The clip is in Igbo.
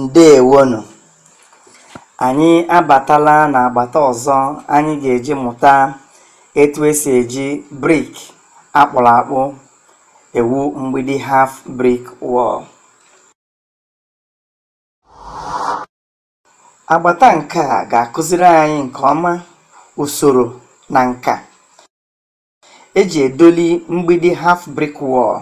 ǹdeèwonù ànyị abàtala n'àgbàta ọ̀zọ anyị gà-èji mụ̀ta etu esì èji brik akpụrụ akpụ ewu mgbidi haf brik wall. agbata nke a ga-akụziri anyị nke ọma usoro na nka eji edoli mgbidi haf brik wall.